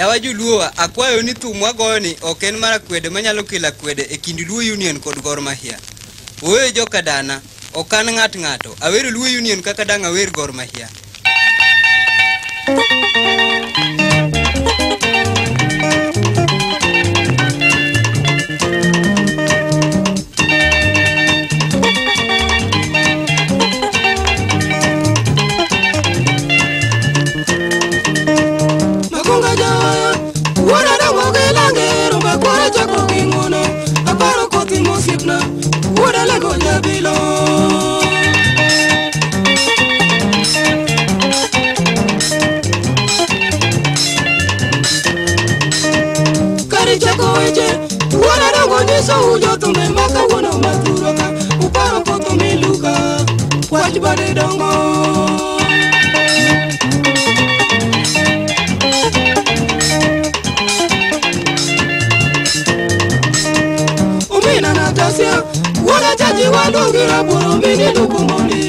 Yawa Joluo, akwayo ni thum wagoyo ni ok en mar akwede manyalo kelo akwede e kind Luo Union kod Gor Mahia. Wuoyo joka dana, ok an ng'at ng'ato. Awero Luo Union kaka dang' awer Gor Mahia. bade dongo umina na tasia wala jaji walungira buru mini lukumoni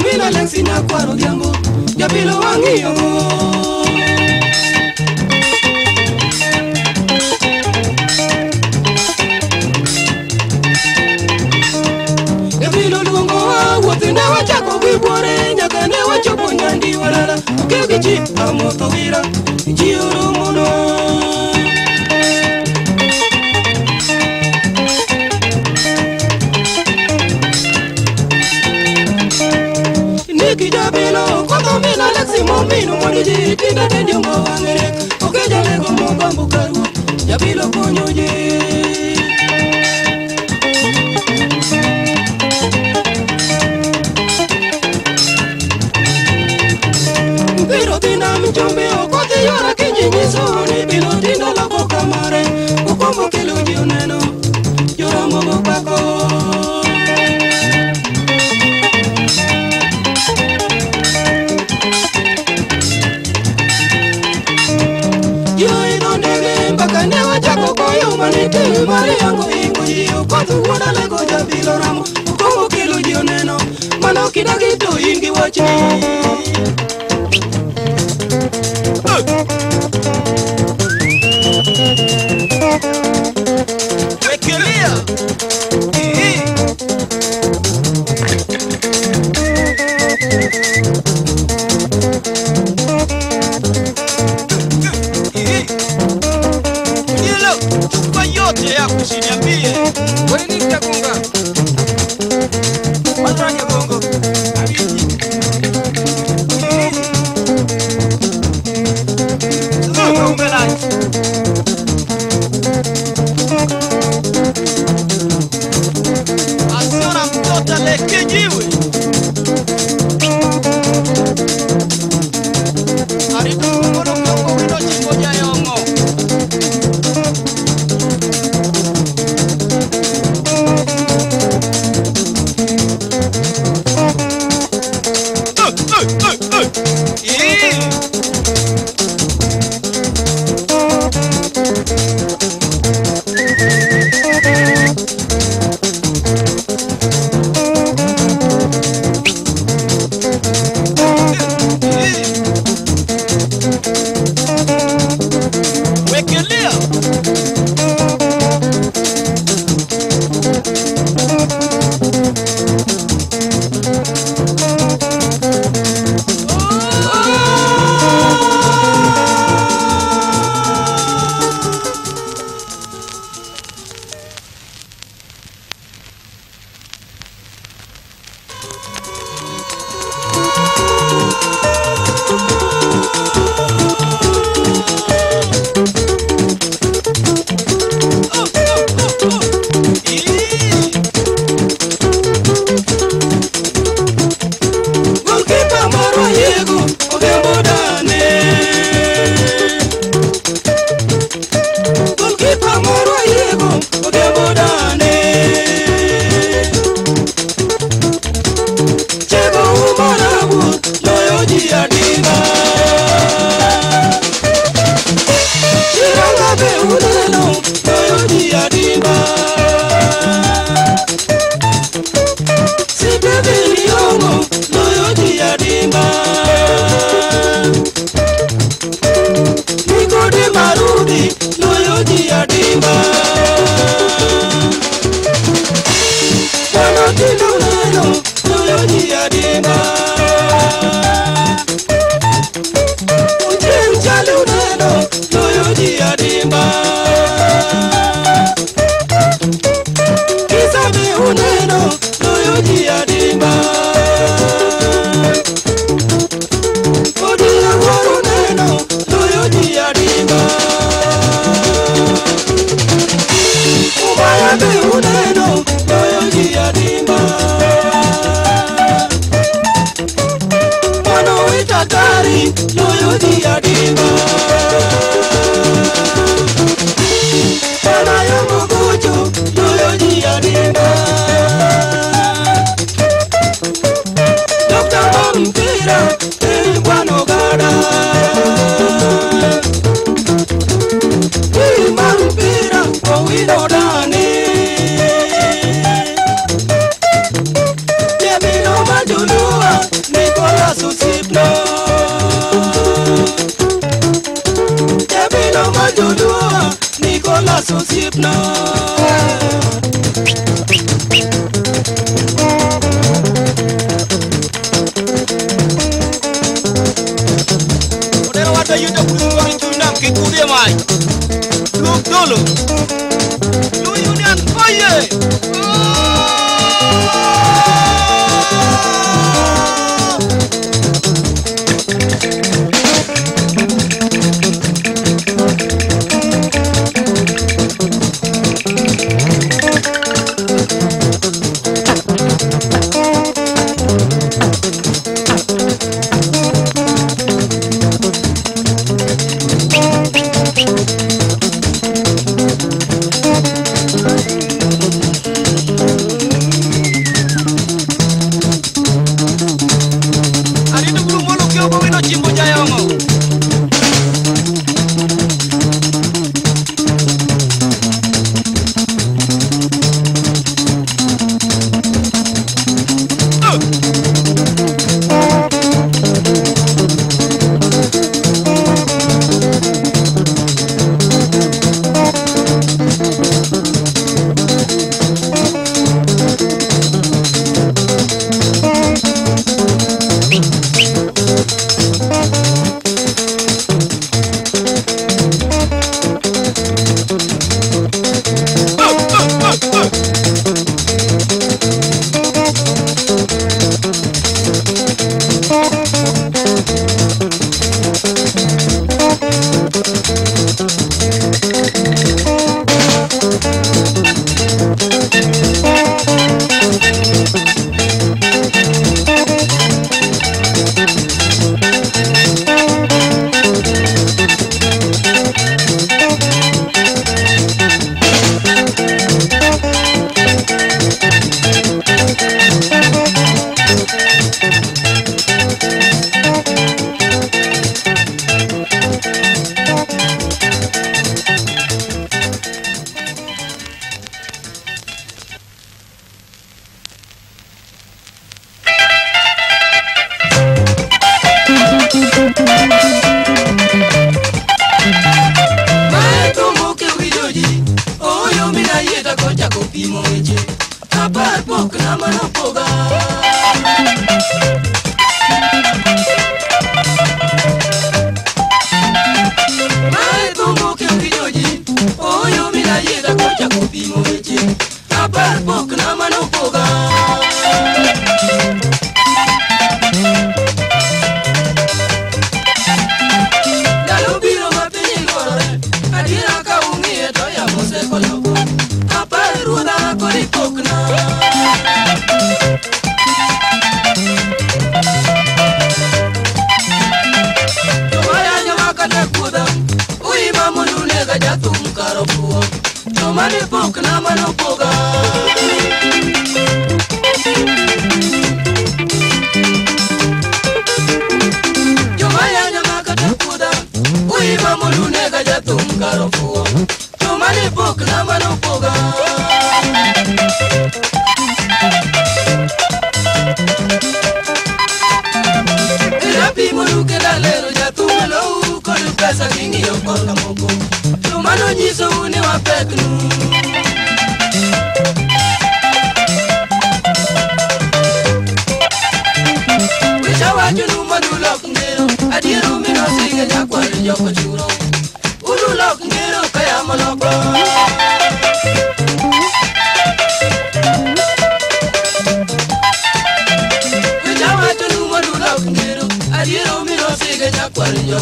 umina lensi na kwaru jambo jabilo wangiyongo Nji amoto wira Nji urumuno Niki jabilo Koto mina lexi momino Moniji tinda tendio mawangere Okejale gomo bambu mjumbe okothi yora kijinyisoni bilo tindo loko kamare kukombo kiluji uneno yora mogo kwako yoidondege mpaka ne wachako koyumaniti mari yangu ingoji okothi wuodalego jabilo ramo kukombo kiluji uneno mano kidagi to in gi wachni you ni mtakunga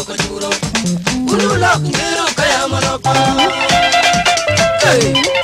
kojuro. Ulu lak miru kaya manapa. Hey.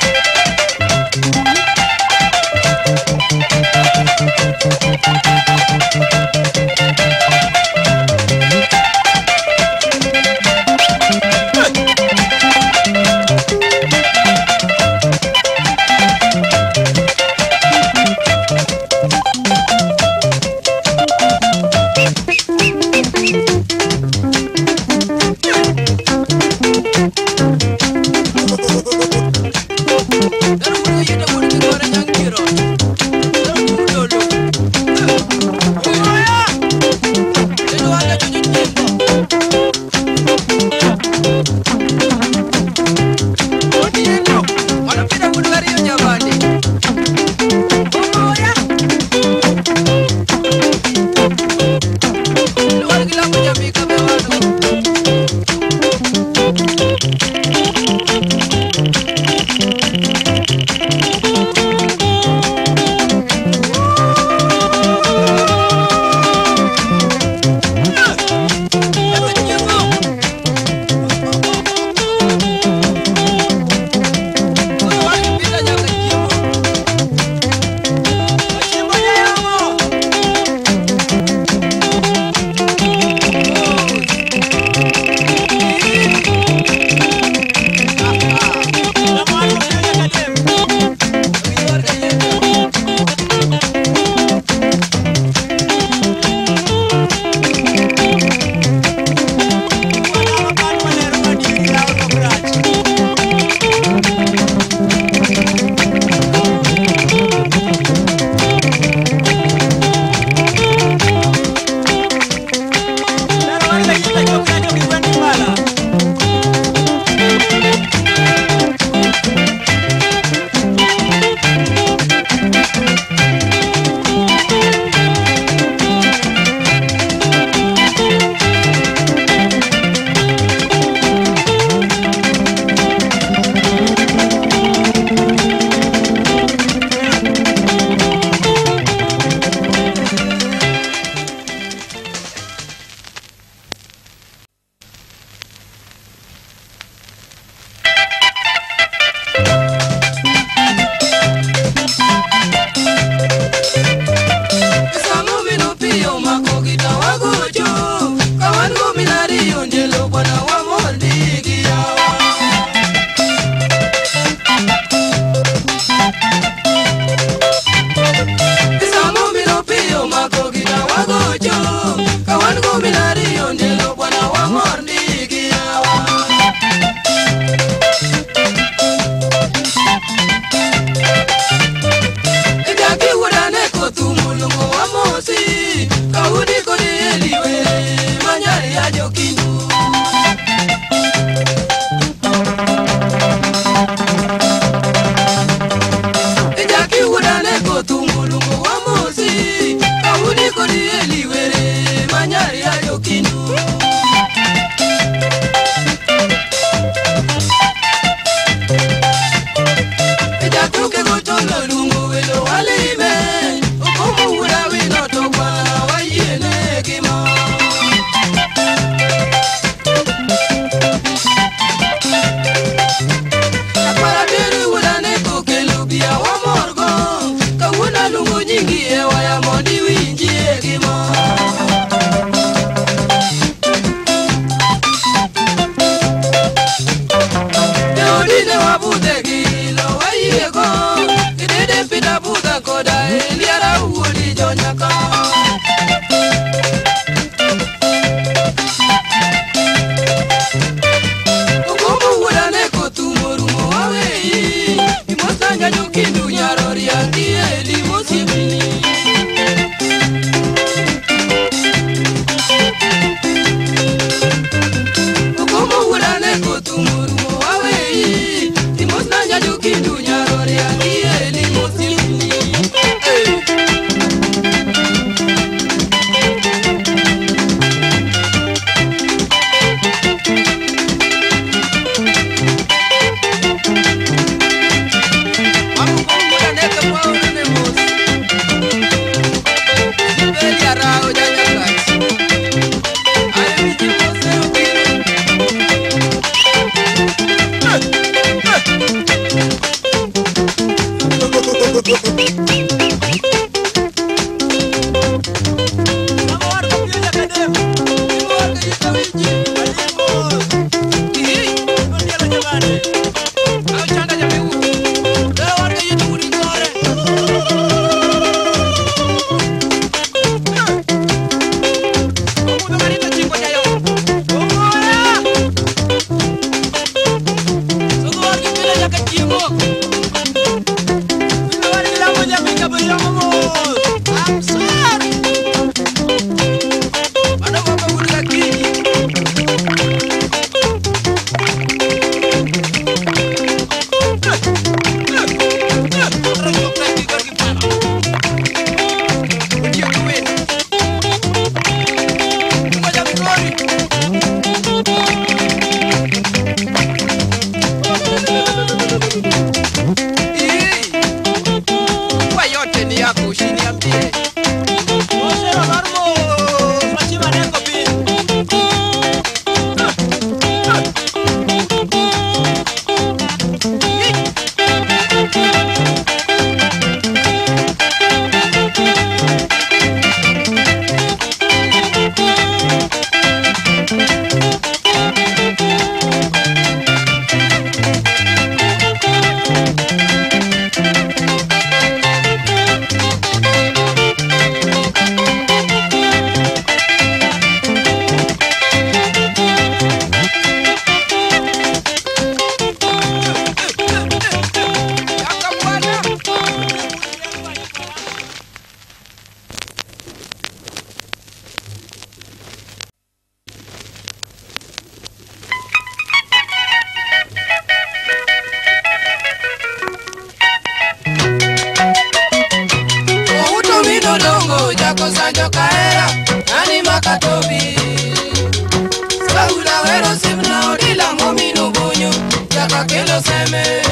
que no se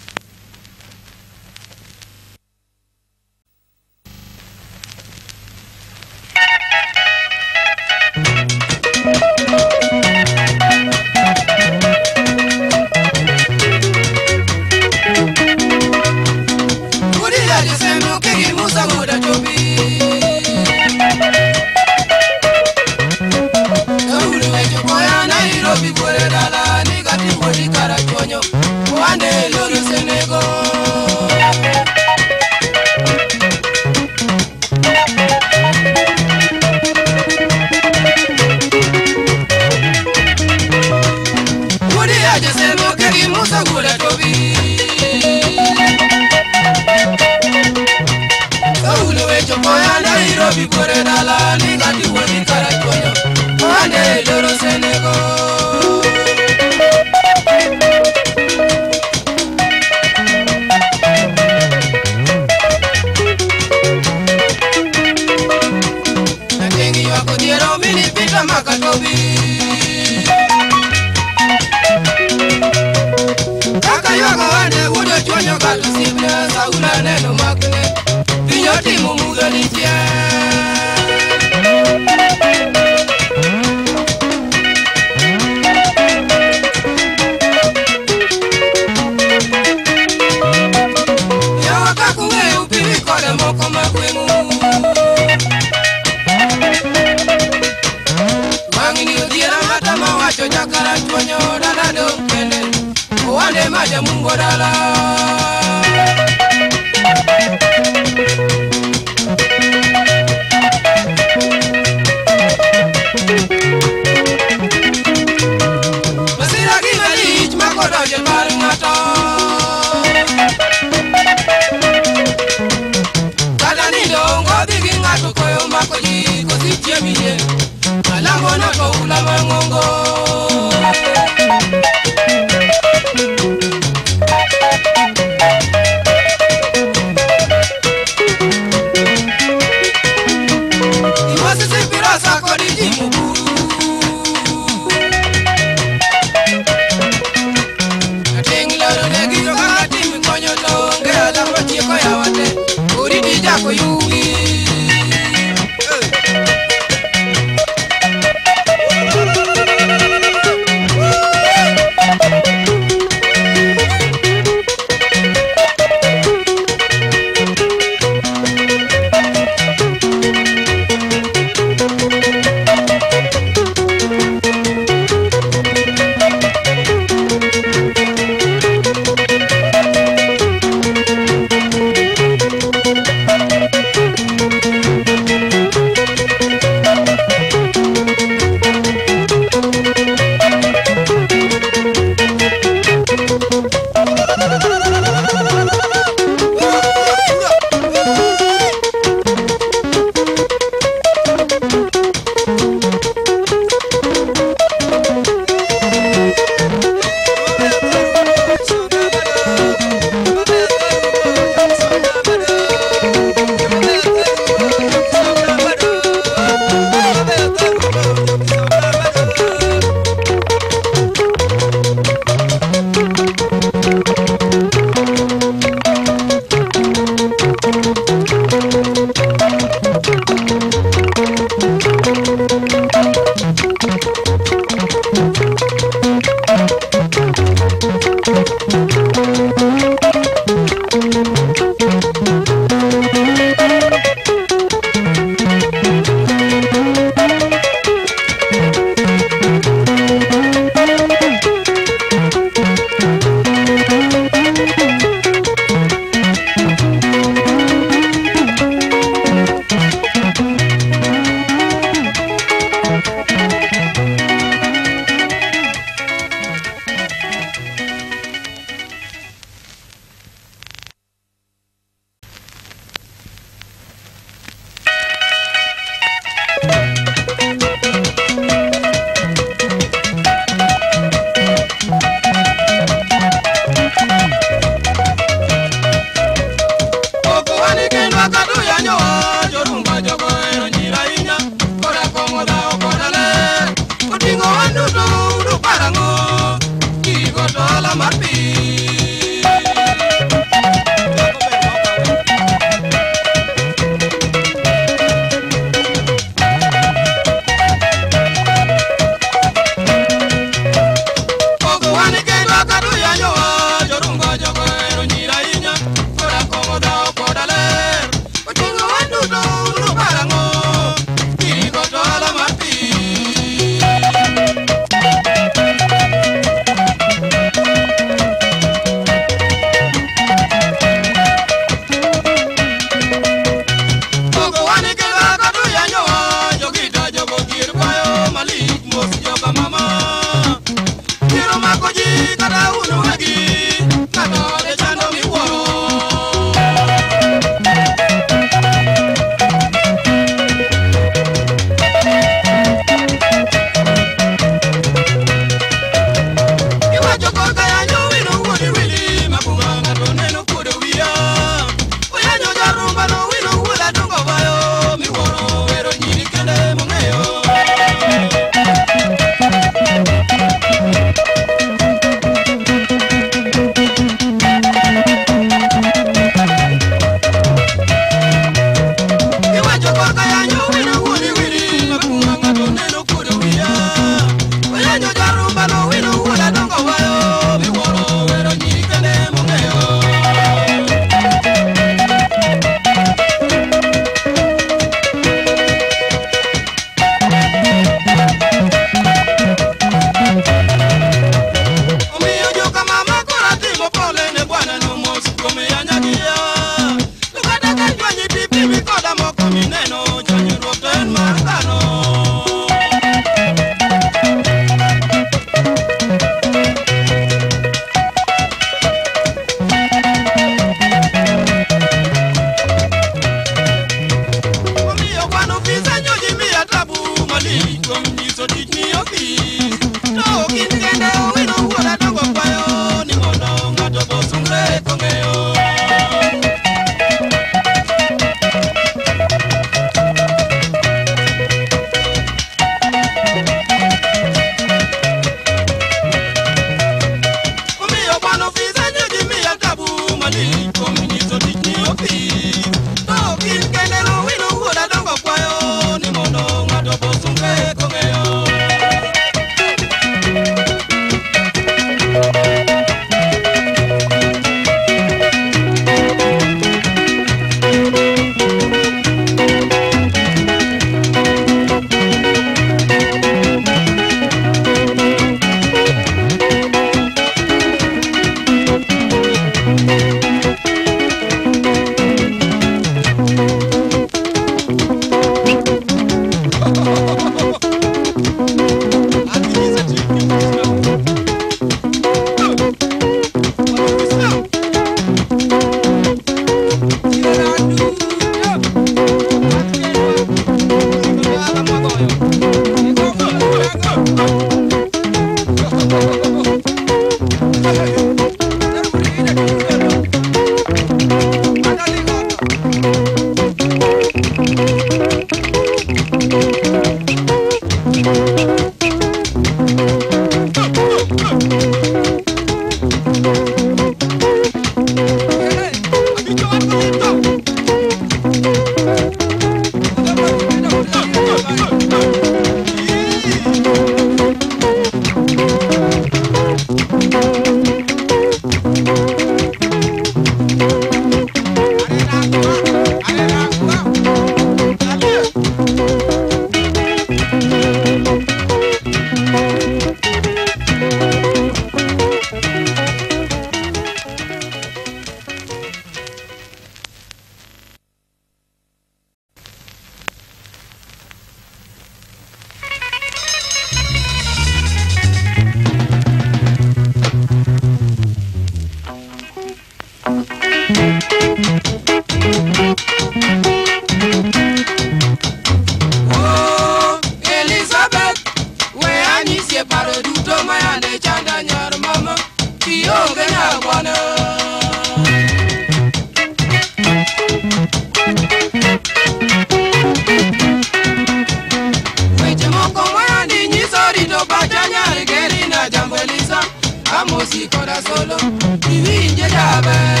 llaman.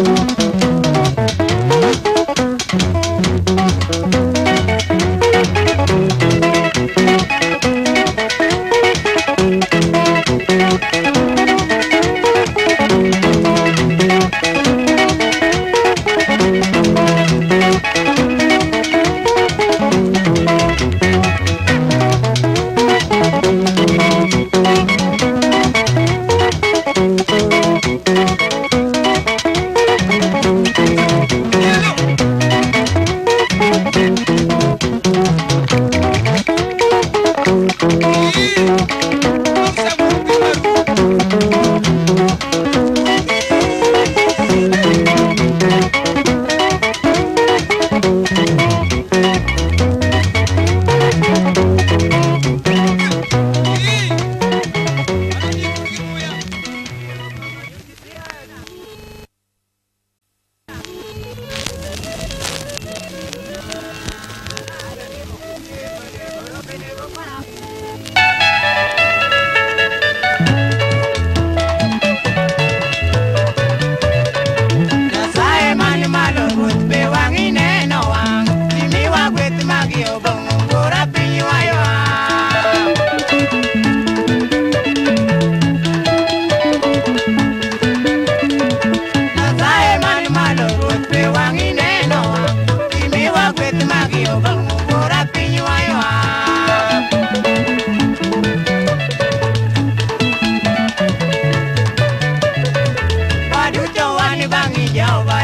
Thank you. ya va.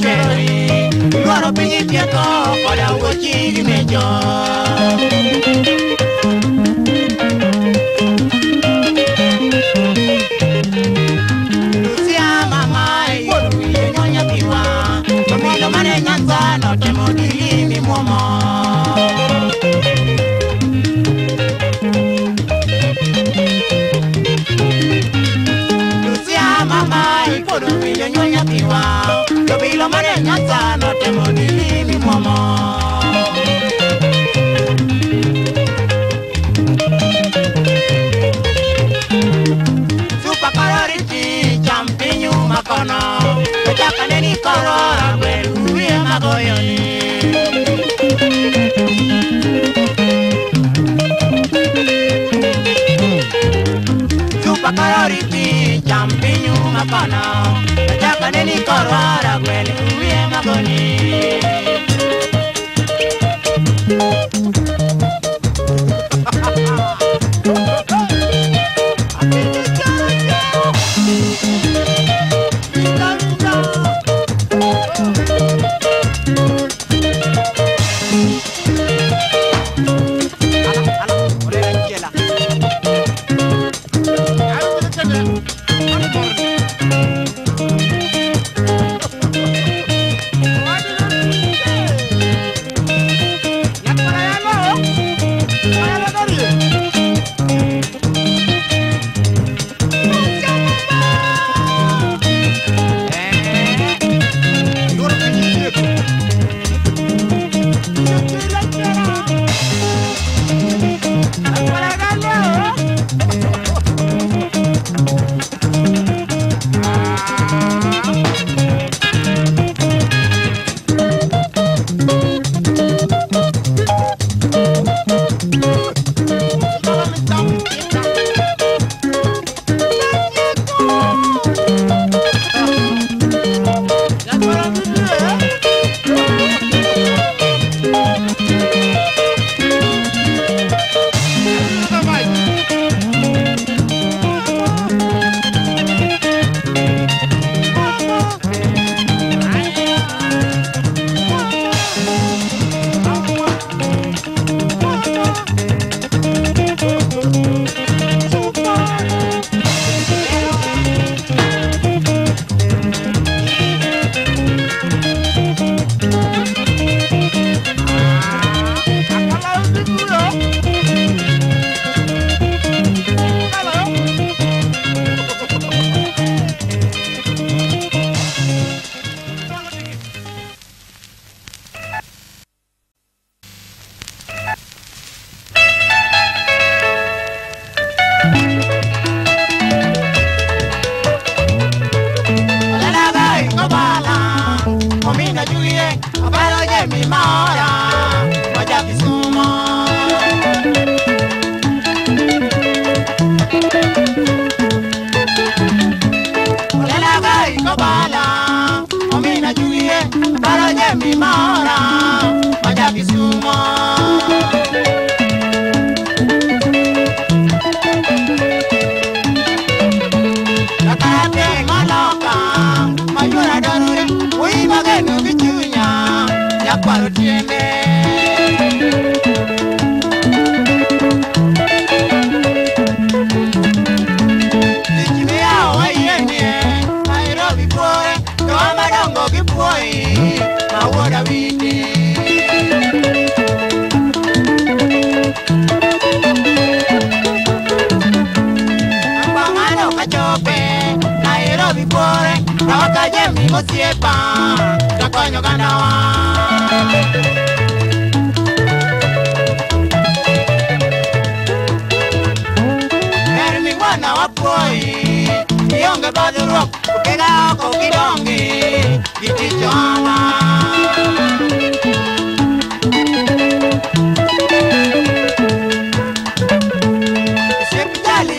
cherry Luaro pinyi pieko Koda ugo chigi mejo Chupa kalori pi, champiñu mapana, nataka neni korwara.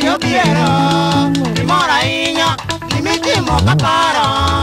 yo quiero, y moraíña, y mi timo capara.